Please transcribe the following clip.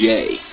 J.